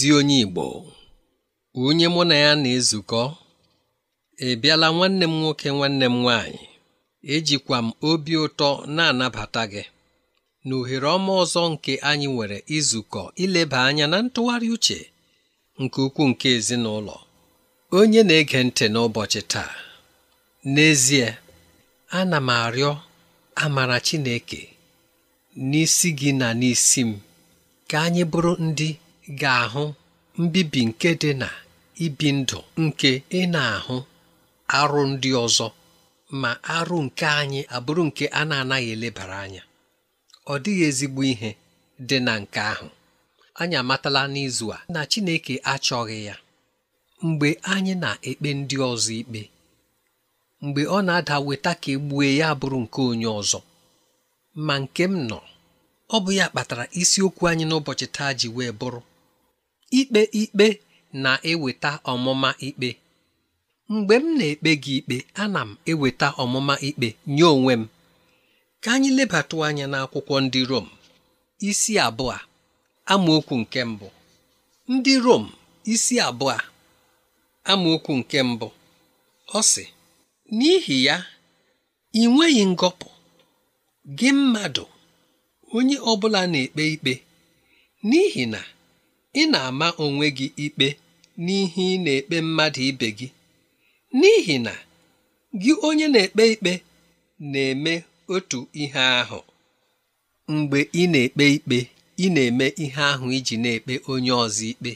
ezi onye Igbo onye mụ na ya na-ezukọ ị e bịala nwanne m nwoke nwanne m nwaanyị ejikwa m obi ụtọ na-anabata gị na ohere ọma ọzọ nke anyị nwere izukọ ileba anya na ntụgharị uche nke ukwuu nke ezinụlọ onye na-ege ntị n'ụbọchị taa n'ezie ana m arịọ amara Chineke n'isi gị na n'isi m ka anyị bụrụ ndị ga-ahụ mbibi nke dị na ibi ndụ nke ị na-ahụ arụ ndị ọzọ ma arụ nke anyị abụrụ nke a na-anaghị elebara anya ọ dịghị ezigbo ihe dị na nke ahụ anyị amatala n'izu a na Chineke achọghị ya mgbe anyị na-ekpe ndị ọzọ ikpe mgbe ọ na-ada weta ka egbue ya bụrụ nke onye ọzọ ma nke m nọ ọ bụ ya kpatara isiokwu anyị n'ụbọchị taa ji wee bụrụ ikpe ikpe na-eweta ọmụma ikpe mgbe m na-ekpe gị ikpe ana m eweta ọmụma ikpe nye onwe m ka anyị lebata anya n'akwụkwọ ndị Rom isi abụọ amaokwu nke mbụ ndị Rom isi abụọ amaokwu nke mbụ ọ sị n'ihi ya ị nweghị ngọpụ gị mmadụ onye ọ bụla na-ekpe ikpe n'ihi na ị na-ama onwe gị ikpe n'ihe ị na-ekpe mmadụ ibe gị n'ihi na gị onye na-ekpe ikpe na-eme otu ihe ahụ mgbe ị na-ekpe ikpe ị na-eme ihe ahụ iji na-ekpe onye ọzọ ikpe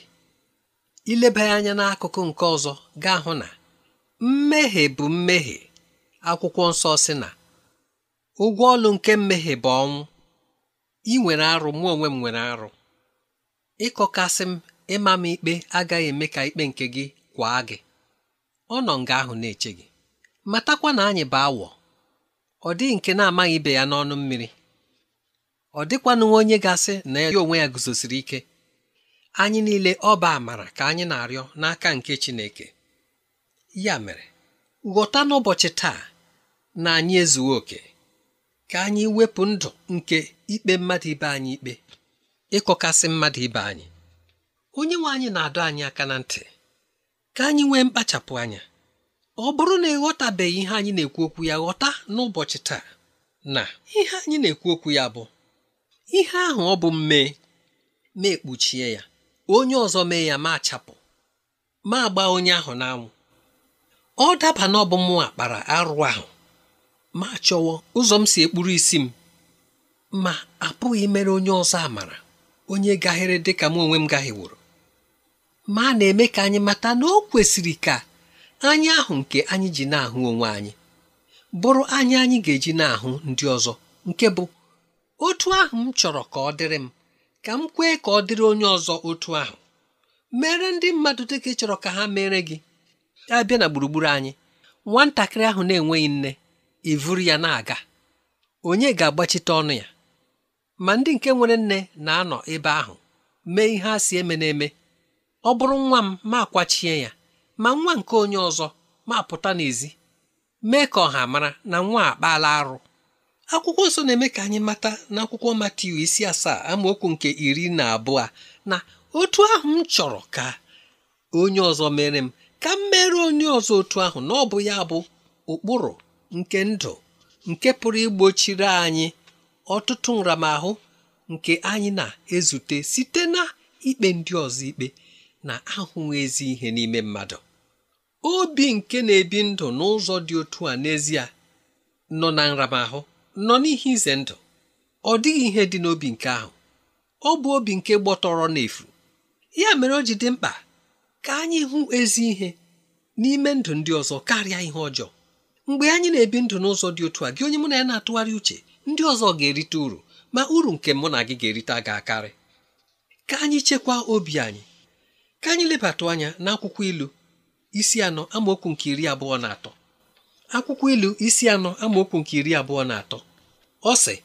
ileba anya n'akụkụ nke ọzọ gaa hụ na mmehie bụ mmehie akwụkwọ nsọ si na ụgwọ ọlụ nke mmehie bụ ọnwụ ị nwere arụ mụ onwe m nwere arụ ịkọkasị m ịma m ikpe agaghị eme ka ikpe nke gị kwaa gị ọ nọ nga ahụ na-eche gị matakwa na anyị bụ awọ ọ dịghị nke na-amaghị ibe ya n'ọnụ mmiri ọ dịkwanụ onye gasị na ya onwe ya guzosiri ike anyị niile ọba amara ka anyị na-arịọ n'aka nke Chineke ya mere ghọta n'ụbọchị taa na anyị ezughị oke ka anyị wepụ ndụ nke ikpe mmadụ ibe anyị ikpe ịkọkasị mmadụ ibe anyị onye nwe anyị na-adọ anyị aka na ntị ka anyị nwee mkpachapụ anya ọ bụrụ na ịghọtabeghị ihe anyị na-ekwu okwu ya ghọta n'ụbọchị taa na ihe anyị na-ekwu okwu ya bụ ihe ahụ ọ bụ mmee ma ekpuchie ya onye ọzọ mee ya ma achapụ ma gbaa onye ahụ n'anwụ ọ daba na ọbụ mụ akpara arụ ahụ ma chọwa ụzọ m si ekpuru isi m ma apụghị mere onye ọzọ amara onye gaghịrị dị ka m onwe m gahiworo ma a na-eme ka anyị mata na o kwesịrị ka anyị ahụ nke anyị ji na-ahụ onwe anyị bụrụ anyị anyị ga-eji na-ahụ ndị ọzọ nke bụ otu ahụ m chọrọ ka ọ dịrị m ka m kwee ka ọ dịrị onye ọzọ otu ahụ mere ndị mmadụ dị ka ị chọrọ ka ha mere gị abịa na gburugburu anyị nwatakịrị ahụ na-enweghị nne ivuru ya na-aga onye ga-agbachite ọnụ ya ma ndị nke nwere nne na-anọ ebe ahụ mee ihe a si eme n'eme, eme ọ bụrụ nwa m ma akwachie ya ma nwa nke onye ọzọ ma pụta n'ezi mee ka ọha mara na nwa akpaala arụ akwụkwọ nso na-eme ka anyị mata n'akwụkwọ Matiu isi asaa amaokwu nke iri na abụọ na otu ahụ m chọrọ ka onye ọzọ mere m ka m mere onye ọzọ otu ahụ na ọ bụ ya bụ ụkpụrụ nke ndụ nke pụrụ igbochiri anyị ọtụtụ nramahụ nke anyị na-ezute site na ikpe ndị ọzọ ikpe na ahụghị ezi ihe n'ime mmadụ obi nke na-ebi ndụ n'ụzọ dị otu a n'ezie nọ na nramahụ nọ n'ihe ize ndụ ọ dịghị ihe dị n'obi nke ahụ ọ bụ obi nke gbọtọrọ n'efu ya mere o ji dị mkpa ka anyị hụ ezi ihe n'ime ndụ ndị ọzọ karịa ihe ọjọọ mgbe anyị na-ebi ndụ n'ụzọ dị otu a gị onye mụ na ya na-atụgharị uche ndị ọzọ ga-erite uru ma uru nke mụ na gị ga-erite ga-akarị ka anyị chekwaa obi anyị ka anyị lebatụ anya n'akwụkwọ ilu isi anọ amaokwu nke iri abụọ na atọ akwụkwọ ilu isi anọ amaokwu nke iri abụọ na atọ ọsị. sị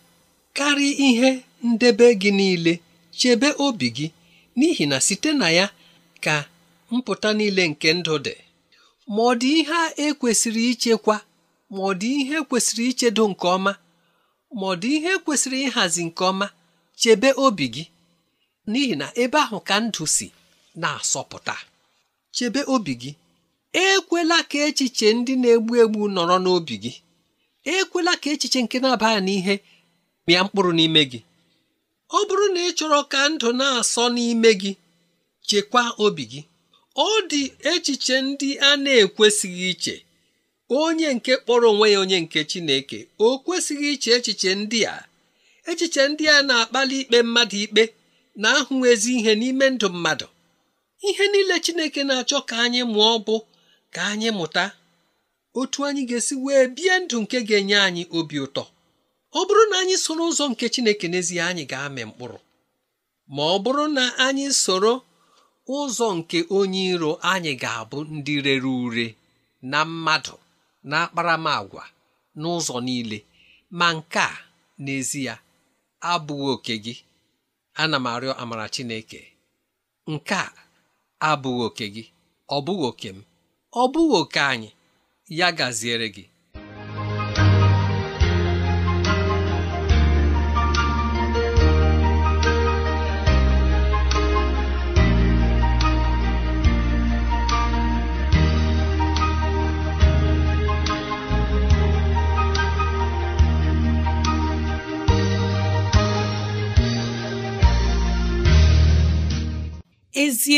karịa ihe ndebe gị niile chebe obi gị n'ihi na site na ya ka mpụta niile nke ndụ dị ma ọ dị ihe ekwesịrị ichekwa ma ọ dị ihe e kwesịrị ichedo nke ọma ma ọ dị ihe kwesịrị ịhazi nke ọma chebe obi gị n'ihi na ebe ahụ ka ndụ si na-asọpụta chebe obi gị ekwela ka echiche ndị na-egbu egbu nọrọ n'obi gị ekwela ka echiche nke na aba n'ihe mịa mkpụrụ n'ime gị ọ bụrụ na ị chọrọ ka ndụ na-asọ n'ime gị chekwaa obi gị ọ dị echiche ndị a na-ekwesịghị iche onye nke kpọrọ onwe ya onye nke Chineke o kwesịghị iche echiche ndị a echiche ndị a na-akpali ikpe mmadụ ikpe na-ahụ ezi ihe n'ime ndụ mmadụ ihe niile Chineke na-achọ ka anyị mụọ bụ ka anyị mụta otu anyị ga-esi wee bie ndụ nke ga-enye anyị obi ụtọ ọ bụrụ na anyị soro ụzọ nke Chineke n'ezie anyị ga-amị mkpụrụ ma ọ bụrụ na anyị soro ụzọ nke onye iro anyị ga-abụ ndị rere ure na mmadụ na akparamagwa n'ụzọ niile ma nke a n'ezi ya abụghị oke gị ana m arịọ amara Chineke nke a abụghị oke gị ọ bụghị oke m ọ bụghị oke anyị ya gaziere gị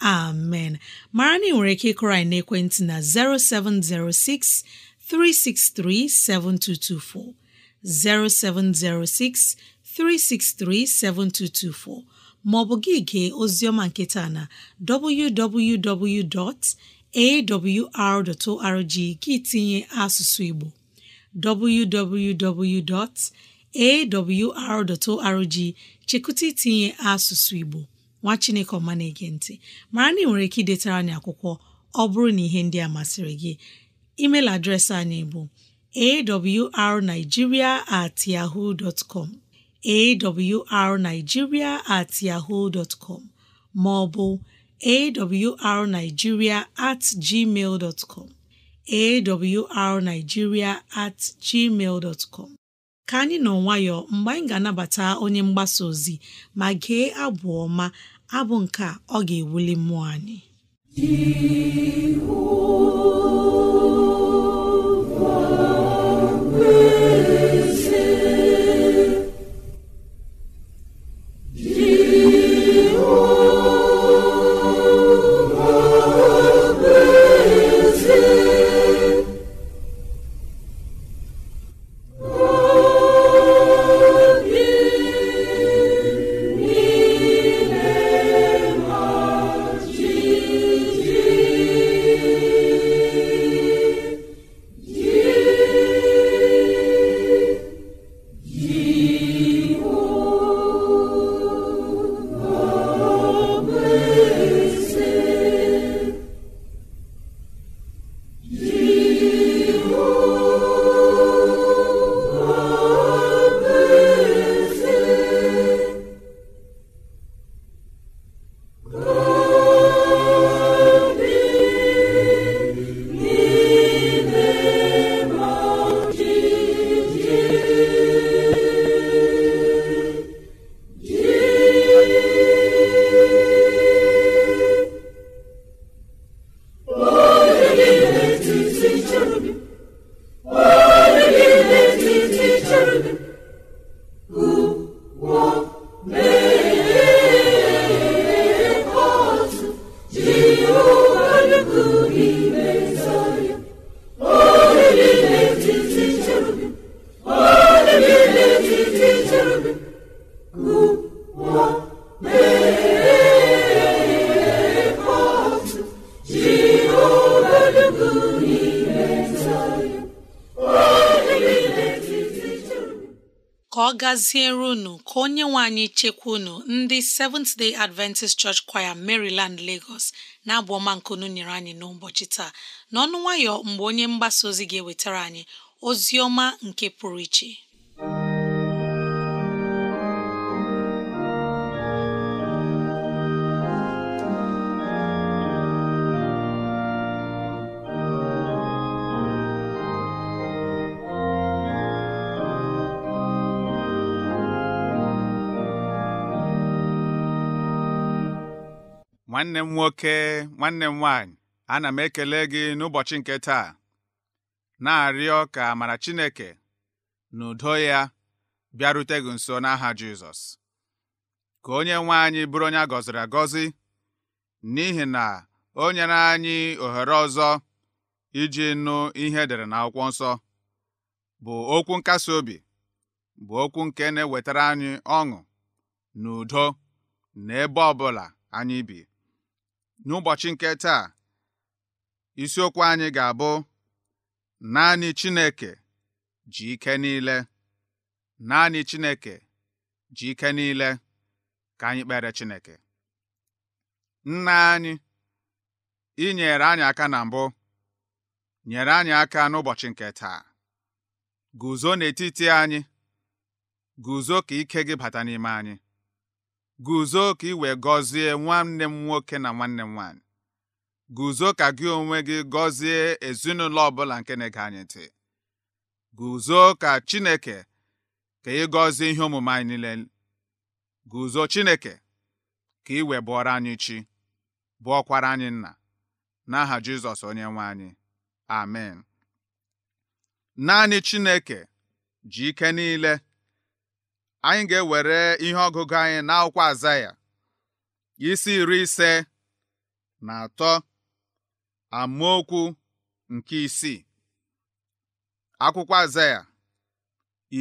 amen mara na ị nwere ike ịkụrọ anyị na 0706 363 7224 0706 363 7224 maọbụ gị gee oziọma nketa na www.awr.org gị tinye asụsụ Igbo www.awr.org chekụta itinye asụsụ Igbo nwa chineke ọma na-ege ntị mara na ị nwere ike idetara anyị akwụkwọ ọ bụrụ na ihe ndị a masịrị gị email adreesị anyị bụ arigiria at at com ma ọ bụ at gmail com at gmail ka anyị nọ nwayọ mgbe anyị ga-anabata onye mgbasa ozi ma gee abụ ọma abụ nke ọ ga-ewuli mmụọ anyị gaziere unu ka onye nwe anyị chekwa unu ndị Seventh Day Adventist Church Choir Maryland Lagos na-abụ ọma nkunu nyere anyị n'ụbọchị taa n'ọnụ nwayọ mgbe onye mgbasa ozi ga-ewetara anyị ozi ọma nke pụrụ iche nwanne m nwoke nwanne m nwaanyị ana m ekele gị n'ụbọchị nke taa na-arịọ ka mara Chineke na udo ya bịarute gị nso n'aha Jizọs ka onye nwe anyị bụrụ onye a gọziri agọzi n'ihi na o nyere anyị ohere ọzọ iji nụ ihe edere akwụkwọ nsọ bụ okwu nkasi obi bụ okwu nke na-ewetara anyị ọṅụ na udo ọ bụla anyị bi n'ụbọchị nke taa isiokwu anyị ga-abụ naanị Chineke ji ike niile naanị Chineke ji ike niile ka anyị kpere Chineke nna anyị ị nyere anyị aka na mbụ nyere anyị aka n'ụbọchị nke taa guzo n'etiti anyị guzo ka ike gị bata n'ime anyị guzo ka ị wee gọzie nwanne m nwoke na nwanne m nwaanyị guzo ka gị onwe gị gọzie ezinụlọ ọbụla nke na-ege anyị ntị guzo ka chineke ka ị gọzie ihe omume anyị niile guzo chineke ka ị wee bụọrọ anyị chi bụọkwara anyị nna n'aha jizọs onye nwe anyị amen naanị chineke ji ike niile anyị ga-ewere ihe ọgụgụ anyị n'akwụkwọ akwụkwọ Azaya isi iri ise na atọ amaokwu nke isii akwụkwọ Azaya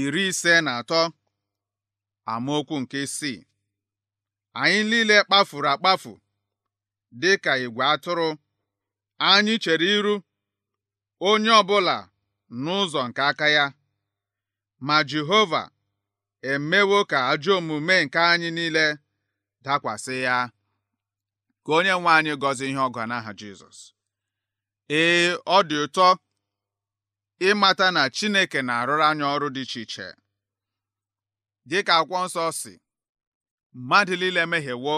iri ise na atọ amaokwu nke isii anyị niile kpafuru akpafu dị ka igwe atụrụ anyị chere iru onye ọbụla n'ụzọ nke aka ya ma Jehova emewo ka ajọ omume nke anyị niile dakwasị ya ka onye nwe anyị gọzie ihe ọgọ n'aha Jizọs ee ọ dị ụtọ ịmata na Chineke na-arụrụ anyị ọrụ dị iche iche dịka akwụkwọ nsọ si mmadụ niile mehiewo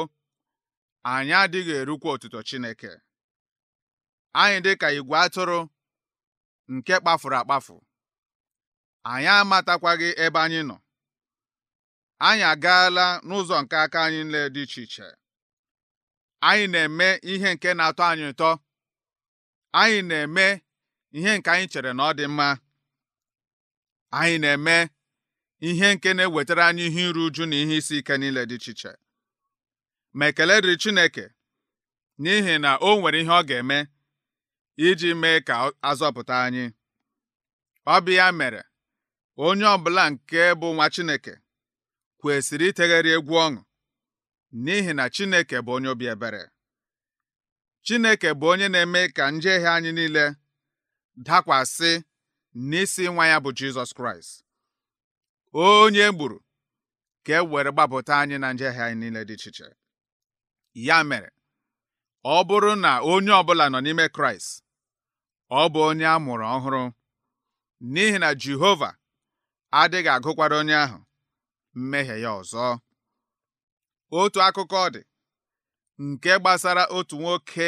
anyị adịghị erukwa otuto Chineke anyị dị ka igwe atụrụ nke kpafuru akpafu anyị amatakwaghị ebe anyị nọ anyị agaala n'ụzọ nke aka anyị nle dị iche iche anyị na-eme ihe nke na-atọ anyị ụtọ anyị na-eme ihe nke anyị chere na ọ dị mma anyị na-eme ihe nke na-ewetara anyị ihe iru uju na ihe isi ike niile dị iche iche ma ekele dịrị Chineke n'ihi na o nwere ihe ọ ga-eme iji mee ka azọpụta anyị ọ bụ ya mere onye ọbụla nke bụ nwa Chineke kwesịrị itegharị egwu ọṅụ n'ihi na Chineke bụ onye obi ebere Chineke bụ onye na-eme ka njehie anyị niile dakwasị n'isi nwa ya bụ Jizọs Kraịst onye gburu ka e were gbapụta anyị na njehie anyị niile dị iche ya mere ọ bụrụ na onye ọbụla nọ n'ime Kraịst ọ bụ onye a mụrụ ọhụrụ n'ihi na Jehova adịghị agụkwara onye ahụ mmehie ya ọzọ otu akụkọ dị nke gbasara otu nwoke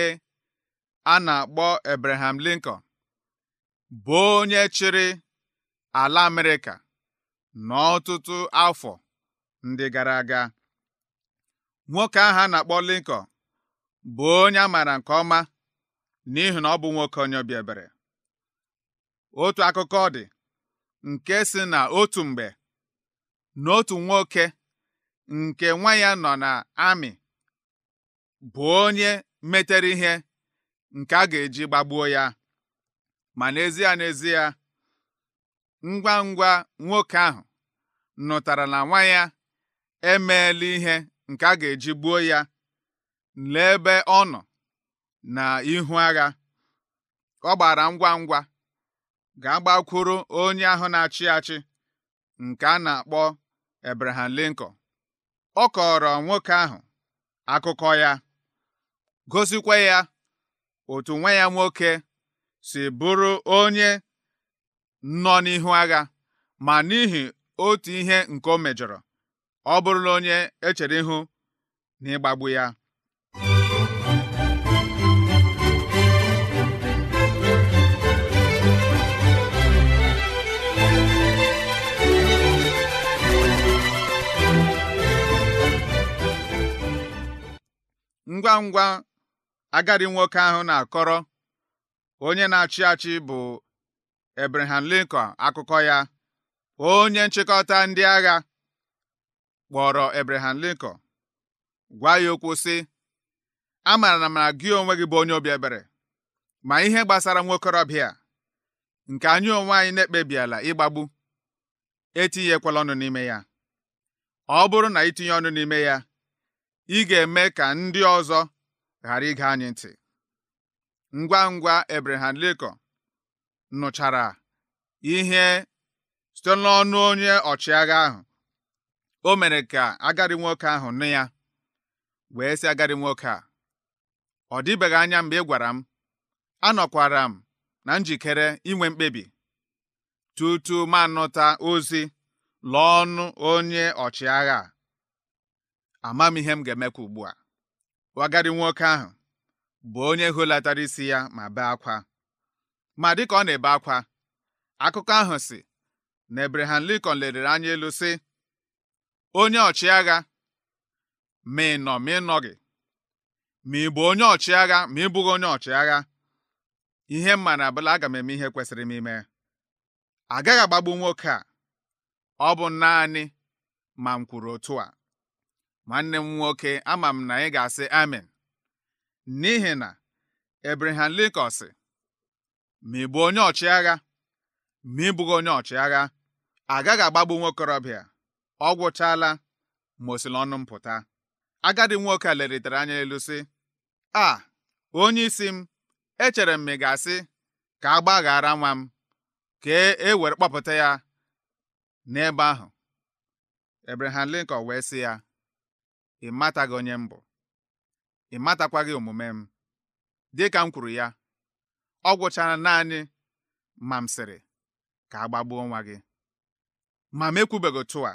a na-akpọ Abraham Lincoln bụ onye chịrị ala Amerịka n'ọtụtụ afọ ndị gara aga nwoke ahụ a na-akpọ Lincoln bụ onye a maara nke ọma n'ihi na ọ bụ nwoke onye obi ebere otu akụkọ dị nke si na otu mgbe n'otu nwoke nke nwa ya nọ na amị bụ onye metere ihe nke a ga-eji gbagbuo ya ma n'ezie n'ezie ngwa ngwa nwoke ahụ nụtara na nwa ya emeela ihe nke a ga-eji gbuo ya n'ebe ọ nọ na ihu agha ọ gbara ngwa ngwa ga-agbakwuru onye ahụ na-achị achị nke a na-akpọ Abraham Lincoln ọ kọrọ nwoke ahụ akụkọ ya gosikwa ya otu nwe ya nwoke si bụrụ onye nọ n'ihu agha ma n'ihi otu ihe nke o mejọrọ ọ bụrụla onye echere ihu n'ịgbagbu ya ngwa ngwa agadi nwoke ahụ na-akọrọ onye na-achị achị bụ Abraham Lincoln akụkọ ya onye nchịkọta ndị agha kpọrọ Abraham Lincoln gwa ya okwu sị A maara na gị onwe gị bụ onye obi ebere ma ihe gbasara nwokorobịa a nke anyị onwe anyị na-ekpebiela ịgbagbu etinyekwala ọnụ n'ime ya ọ bụrụ na itinye ọnụ n'ime ya ị ga-eme ka ndị ọzọ ghara ịga anyị ntị ngwa ngwa Abraham Lincoln nụchara ihe site n'ọnụ onye ọchịagha ahụ o mere ka agadi nwoke ahụ nụ ya wee si agadi nwoke a ọ dịbeghị anya mgbe ị gwara m anọkwara m na njikere inwe mkpebi tutu m anụta ozi lụọ ọnụ onye ọchịagha a ama m ihe m ga-emekwa ugbu a wagadi nwoke ahụ bụ onye holatara isi ya ma bee akwa ma dịka ọ na-ebe akwa akụkọ ahụ si na Abraham likon lelere anya elu sị onye ọchịagha ma ị nọ ma ị gị ma ị bụ onye ọchịagha ma ị bụghị onye ọchịagha ihe mma na abụla aga m eme ihe kwesịrị m ime agaghị agbagbu nwoke a ọ bụ naanị ma m kwuru otu a nwanne m nwoke ama m na ị ga-asị amen n'ihi na Abraham Lincoln sị ma ị bụ onye ọchịagha ma ị onye ọchịagha agaghị agbagbu nwokorobịa ọ gwụchaala ma osili ọnụ mpụta." m nwoke a leritere anya elu sị a onye isi m echere m m ị ga-asị ka a gbaghara nwa m ka e, e were kpọpụta ya n'ebe ahụ Abraham Lincoln wee sị ya ị mataghị onye m bụ ị matakwaghị omume m dịka m kwuru ya ọ gwụchara naanị ma m sịrị ka a gbagbuo nwa gị ma m ekwubeghị otu a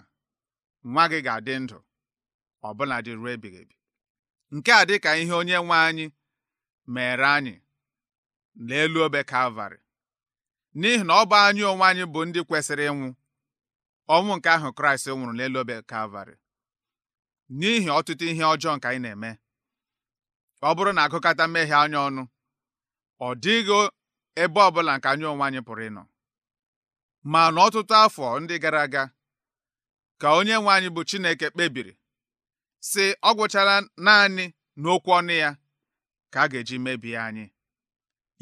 nwa gị ga-adị ndụ ọbụla dị ruo ebighị ebi nke a ka ihe onye nwe anyị mere anyị n'elu obe Kalvarị n'ihi na ọ bụ anyị onwe anyị bụ ndị kwesịrị ịnwụ ọnwụ nke ahụ Kraịst nwụrụ n'elu obe Kalvarị n'ihi ọtụtụ ihe ọjọọ nke anyị na-eme ọ bụrụ na agụkata mmehie anya ọnụ ọ dịghị ebe ọbụla nke anyị onwe anyị pụrụ ịnọ ma n'ọtụtụ afọ ndị gara aga ka onye nwe anyị bụ Chineke kpebiri sị ọ gwụchara naanị n'okwu ọnụ ya ka a ga-eji mebie anyị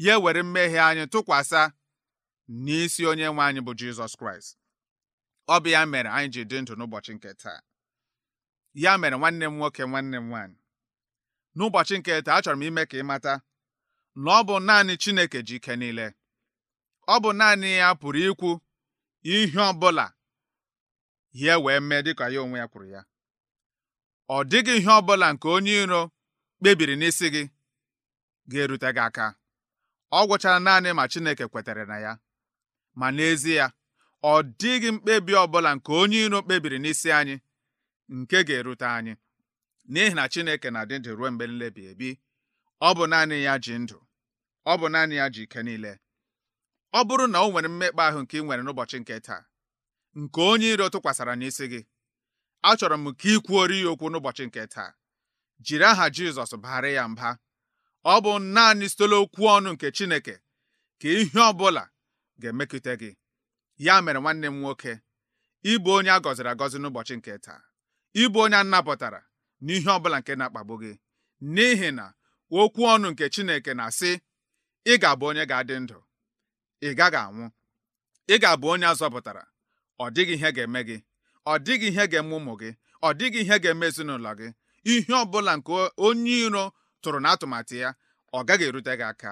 ya were mmehie anyị tụkwasa n'isi onye nwe anyị bụ Jizọs Kraịst ọ bụ ya mere anyị ji dị ndụ n'ụbọchị nke taa ya mere nwanne m nwoke nwanne m nwaanyị n'ụbọchị nke taa achọrọ m ime ka ị mata na ọ bụ naanị Chineke ji ike niile ọ bụ naanị ya pụrụ ikwu ihe ọ bụla ya wee mee dịka ya onwe ya kwuru ya ọ dịghị ihe ọ bụla nke onye iro kpebiri n'isi gị ga-erute gị aka ọ gwụchara naanị ma Chineke kwetere na ya ma n'ezie ọ dịghị mkpebi ọ bụla nke onye iro kpebiri n'isi anyị nke ga-erute anyị n'ihi na Chineke na-adị ndụ ruo mgbe nlebi ebi ọ bụ naanị ya ji ndụ ọ bụ naanị ya ji ike niile ọ bụrụ na o nwere mmekpa ahụ nke ị nwere n'ụbọchị nke taa nke onye iro tụkwasara n'isi gị achọrọ m ka ị kwuoro ya okwu n'ụbọchị nke taa jiri aha Jizọs baghara ya mba ọ bụ naanị sitela okwu ọnụ nke Chineke ka ihe ọ bụla ga-emekute gị ya mere nwanne m nwoke ịbụ onye a gọziri agọzi n'ụbọchị nke taa ịbụ onye anapụtara n'ihe ọbụla nke na-akpagbu gị n'ihi na okwu ọnụ nke Chineke na-asị ị ga-abụ onye ga-adị ndụ ị gaghị anwụ ị ga-abụ onye azọpụtara ọ dịghị ihe ga-eme gị ọ dịghị ihe ga-eme ụmụ gị ọ dịghị ihe ga-eme ezinụlọ gị ihe ọbụla nke onye iro tụrụ n'atụmatụ ya ọ gaghị erute gị aka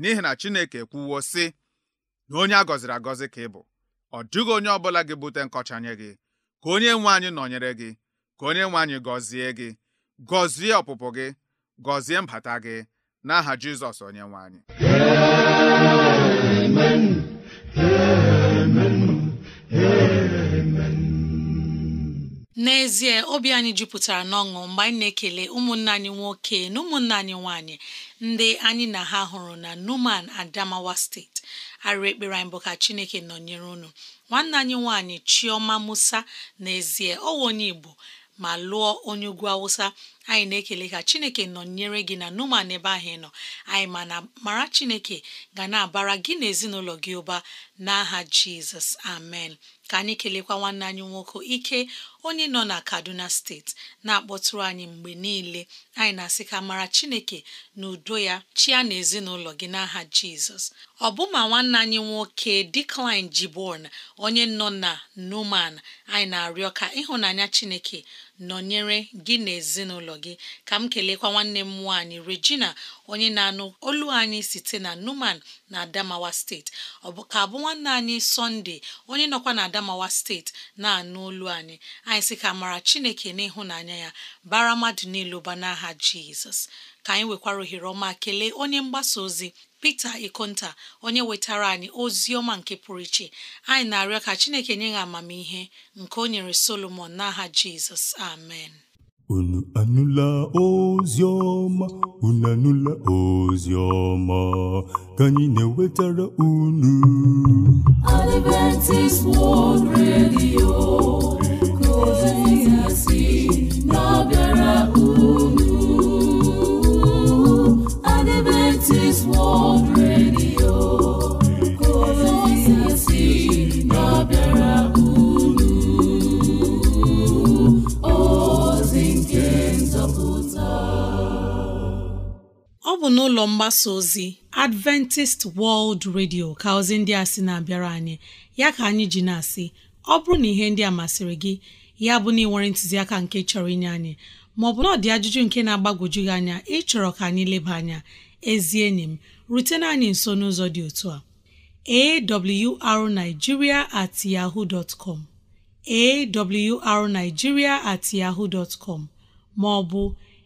n'ihi na Chineke ekwuwo sị na onye a gọziri agọzi ka ị bụ ọ dịghị onye ọbụla gị bute nkọcha nye gị ka onye nwe anyị nọnyere gị ka onye nwe anyị gọzie gị gọzie ọpụpụ gị gọzie mbata gị n'aha Jizọs onye nwe anyị n'ezie obi anyị jupụtara n'ọṅụ mgbe anyị na-ekele ụmụnne anyị nwoke na ụmụnne anyị nwanyị ndị anyị na ha hụrụ na Numan Adamawa steeti arụ ekpere anyị bụ ka Chineke nọnyere unu nwanne anyị nwanyị Chioma Musa n'ezie ọwa onye Igbo ma lụọ onye ugwu awụsa anyị na-ekele ka chineke nọnyere gị na numan ebe ahụ nọ anyị ma na mara chineke ga na-abara gị na ezinụlọ gị ụba n'aha jizọs amen ka anyị kelekwa nwanne anyị nwoke ike onye nọ na kaduna steeti na-akpọtụrụ anyị mgbe niile anyị na-asị ka mara chineke na udo ya chia na ezinụlọ gị n'aha jizọs ọbụma nwanne anyị nwoke Decline Gibbon onye nọ na Numan anyị na-arịọ ka ịhụnanya chineke nọnyere gị na ezinụlọ gị ka m kelekwa nwanne m nwaanyị regina onye na-anụ olu anyị site na numan na adamawa steeti ọ bụ ka abụ nwanne anyị sọnde onye nọkwa na adamawa steeti na-anụ olu anyị anyị sị ka mara chineke n'ịhụnanya ya bara mmadụ niile ụba n'aha jizọs ka anyị nwekwara ohere ọma kelee onye mgbasa ozi pete Ikonta onye wetara anyị ozi ọma nke pụrụ iche anyị na-arịọ ka Chineke nye ya amamihe nke o nyere Solomon n'aha Jizọs amen unu anụla ozi ọma unu anụla ozi ọma ka anyị na-ewetara unu Adventist World Radio ka ozi ya si ọ bụ n'ụlọ mgbasa ozi Adventist World Radio ka ozi ndị a sị na-abịara anyị ya ka anyị ji na-asị ọ bụrụ na ihe ndị a masịrị gị ya bụ na ị ntụziaka nke chọrọ inye anyị maọbụ na ọ dị ajụjụ nke na-agbagwoju gị anya ịchọrọ ka anyị leba anya ezi enyi m rutena anyị nso n'ụzọ dị otu a arigiria at yahoo dot com at yahoo dot maọbụ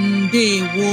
ndewo